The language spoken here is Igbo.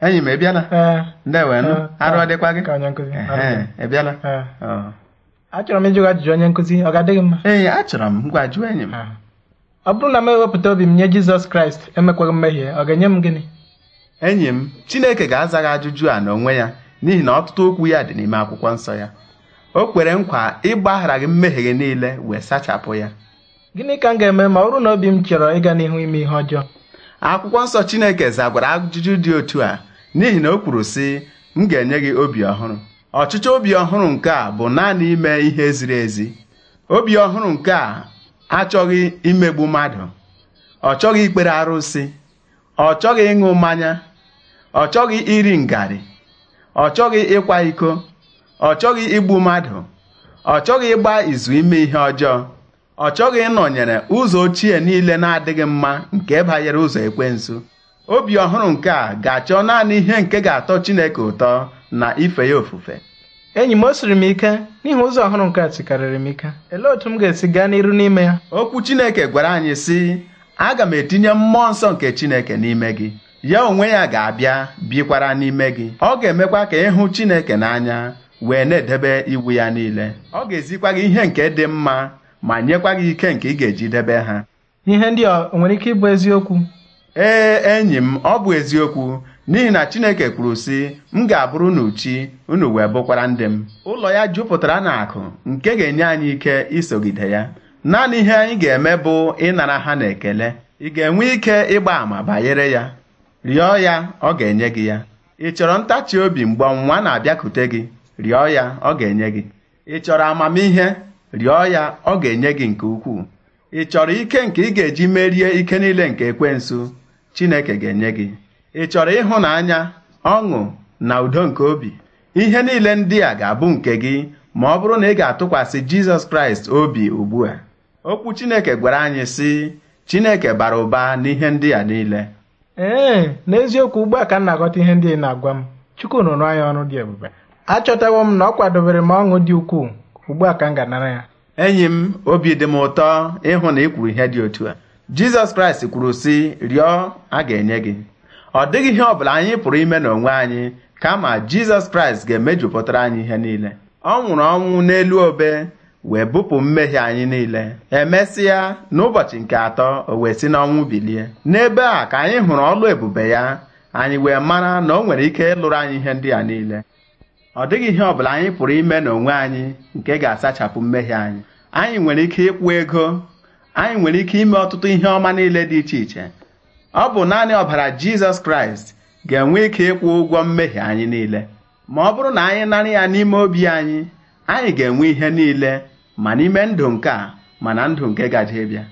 enyi m ị bịala ndewenụ arụ ọdịkwa gị ị bịala achọrọ m ịjụ ajụjụ onye nkụzi ọ ga-adịghị mma ee achọrọ m ngwa jụọ enyi m ọ bụrụ na m ewepụta obi m nye Jizọs Kraịst emekwaghị mmehie ọ ga-enye m gịnị enyi m Chineke ga-aza gị ajụjụ a n'onwe ya n'ihi na ọtụtụ okwu ya dị n'ime akwụkwọ nsọ ya o kwere nkwa ịgbaghara gị mmehie gị niile wee sachapụ ya gịnị ka m ga-eme ma ọ bụrụ na obi m chọrọ ịga n'ihu ime ihe ọjọọ akwụkwọ nsọ Chineke zagwara ajụjụ dị otu a n'ihi na o kwuru sị m ga-enye gị obi ọhụrụ ọchịchọ obi ọhụrụ nke a bụ naanị ime ihe ziri ezi obi ọhụrụ nke a achọghị imegbu mmadụ ọ chọghị ikpere arụsị ọ chọghị ịṅụ mmanya ọ chọghị iri ngarị ọ chọghị ịkwa iko ọ chọghị igbu mmadụ ọ chọghị ịgba izu ime ihe ọjọọ ọ chọghị ịnọnyere ụzọ ochie niile na-adịghị mma nke banyere ụzọ ekwensu obi ọhụrụ nke a ga-achọ naanị ihe nke ga-atọ Chineke ụtọ na ife ya ofufe enyi m o siri m ike n'ihi ụzọ ọhụrụ nke a tikarịrị m ike Elee otu m ga-esi gaa n'iru n'ime ya okwu Chineke gwara anyị sị aga m etinye mmụọ nsọ nke Chineke n'ime gị ya onwe ya ga-abịa bikwara n'ime gị ọ ga-emekwa ka ịhụ Chineke n'anya wee na-edebe iwu ya niile ọ ga-ezikwa gị ihe nke dị mma ma nyekwa gị ike nke ị ga-eji debe ha ihe ndị a nwere ike ịbụ eziokwu ee enyi m ọ bụ eziokwu n'ihi na Chineke kwuru sị m ga-abụrụ unu chi unu wee bụkwara ndị m ụlọ ya jupụtara na akụ nke ga-enye anyị ike isogide ya naanị ihe anyị ga-eme bụ ịnara ha na ekele ị ga-enwe ike ịgba àmà banyere ya rịọ ya ọ ga-enye gị ya ị chọrọ ntachi obi mgbe ọnwa na-abịakute gị rịọ ya ọ ga-enye gị ị chọrọ amamihe rịọ ya ọ ga-enye gị nke ukwuu ị chọrọ ike nke ị ga-eji merie ike niile nke nso Chineke ga-enye gị ị chọrọ ịhụnanya ọṅụ na udo nke obi ihe niile ndị a ga-abụ nke gị ma ọ bụrụ na ị ga-atụkwasị Jizọs Kraịst obi ugbu a okwu Chineke gwara anyị sị Chineke bara ụba n'ihe ndị a niile ee n'eziokwu ugbu a ka m na-aghọta ihe ndị na-agwa m Chukwu rụrụ anyị ọrụ dị ebube achọtawo m na ọ kwadobere m ọṅụ dị ukwuu ugbu a ka m ga-anara ya enyi m obi dị m ụtọ ịhụ na ị kwuru ihe dị otu a jizọs kraịst kwuru sị rịọ a ga-enye gị ọ dịghị ihe ọbụla anyị pụrụ ime n'onwe anyị kama jizọs kraịst ga-emejupụtara anyị ihe niile ọ nwụrụ ọnwụ n'elu obe wee bupụ mmehie anyị niile emesịa n'ụbọchị nke atọ o wee si n'ọnwụ bilie n'ebe a ka anyị hụrụ ọlụ ebube ya anyị wee mara na ọ nwere ike ịlụrụ anyị ihe ndị a niile ọ dịghị ihe ọbụla anyị pụrụ ime n'onwe anyị nke ga-asachapụ mmehie anyị anyị nwere ike ịkwụ ego anyị nwere ike ime ọtụtụ ihe ọma niile dị iche iche ọ bụ naanị ọbara Jizọs Kraịst ga-enwe ike ịkwụ ụgwọ mmehie anyị niile ma ọ bụrụ na anyị narị ya n'ime obi anyị anyị ga-enwe ihe niile ma n'ime ndụ nke a ma na ndụ nke gaje bịa